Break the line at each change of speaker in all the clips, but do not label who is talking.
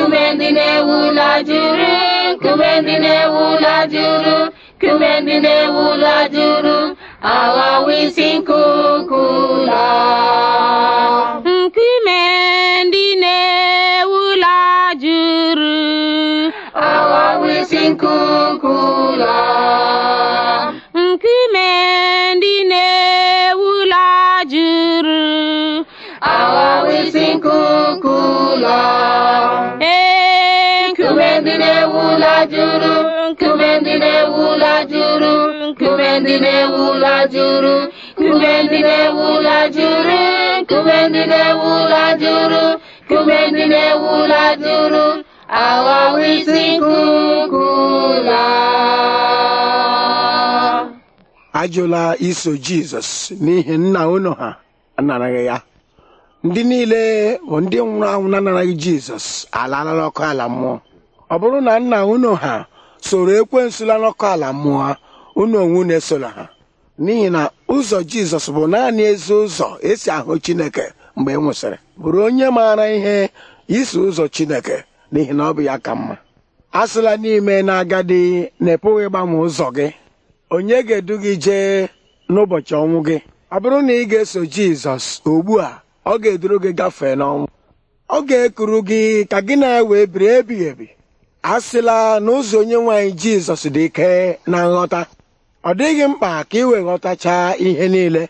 kume ndị na-ewu ụlọ juru kume ndị na-ewu juru
kume ndị na-ewu ụlọ juru awa isi nkuku ụlọ
ndị na-ewu ụlọ juru nkume ndị na-ewu ụlọ jụrụ nkume ndị na-ewu ụlọ jụrụ nkume ndị na-ewu ụlọ jụrụ nkume ndị na-ewu ụlọ jụrụ nkume ndị na-ewu ụlọ jụrụ awawa isi nkuku
ajụla iso jizọs n'ihi nna unu ha anaraghị ya ndị niile bụ ndị nwụrụ anwụ na-anaraghị jizọs alalara ọkụ ala mmụọ ọ bụrụ na nna unu ha soro ekwe la n'ọkụ ala mmụọ unu onwe unu esola ha n'ihi na ụzọ jizọs bụ naanị ezi ụzọ esi ahụ chineke mgbe e nwụsịrị bụrụ onye maara ihe iso ụzọ chineke n'ihi na ọ bụ ya ka mma asịla n'ime na agadi na-epụghị ịgbanwe ụzọ gị onye ga-edu gị jee n'ụbọchị ọnwụ gị ọ bụrụ na ị ga-eso jizọs ugbu a ọ ga-eduru gị gafee n'ọnwụ ọ ga-ekuru gị ka gị na ya wee biri ebighị ebi asịla na ụzọ onye nwanyị jizọs dị ike na nghọta ọ dịghị mkpa ka ị wee ghọtachaa ihe niile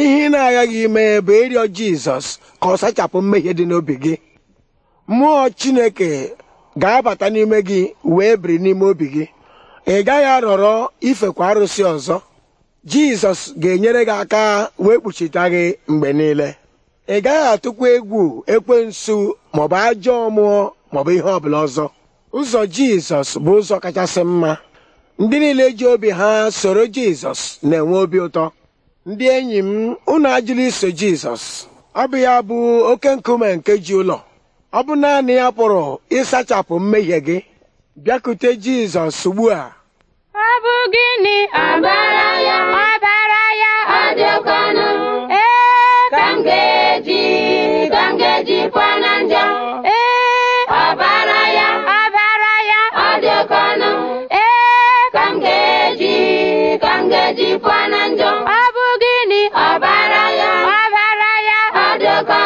ihe ị na agaghị ime bụ ịrịọ jizọs ka ọ sachapụ mmehie dị n'obi gị mmụọ chineke ga-abata n'ime gị wee biri n'ime obi gị ị gaghị arọrọ ifekwa arụsị ọzọ jizọs ga-enyere gị aka wee kpuchita gị mgbe niile ị gaghị atụkwa egwu ekwensu maọbụ ajọ ọmụọ maọbụ ihe ọbụla ọzọ ụzọ jizọs bụ ụzọ kachasị mma ndị niile ji obi ha soro jizọs na-enwe obi ụtọ ndị enyi m unu ajụla iso jizọs ọ bụ ya bụ oke nkume nke ji ụlọ ọ bụ naanị ya pụrụ ịsachapụ mmehie gị bịakute jizọs ugbu a
ọ bụ
gịnị abara adịọka